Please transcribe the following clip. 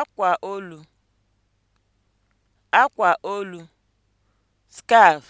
akwa olu akwa olu (scarf)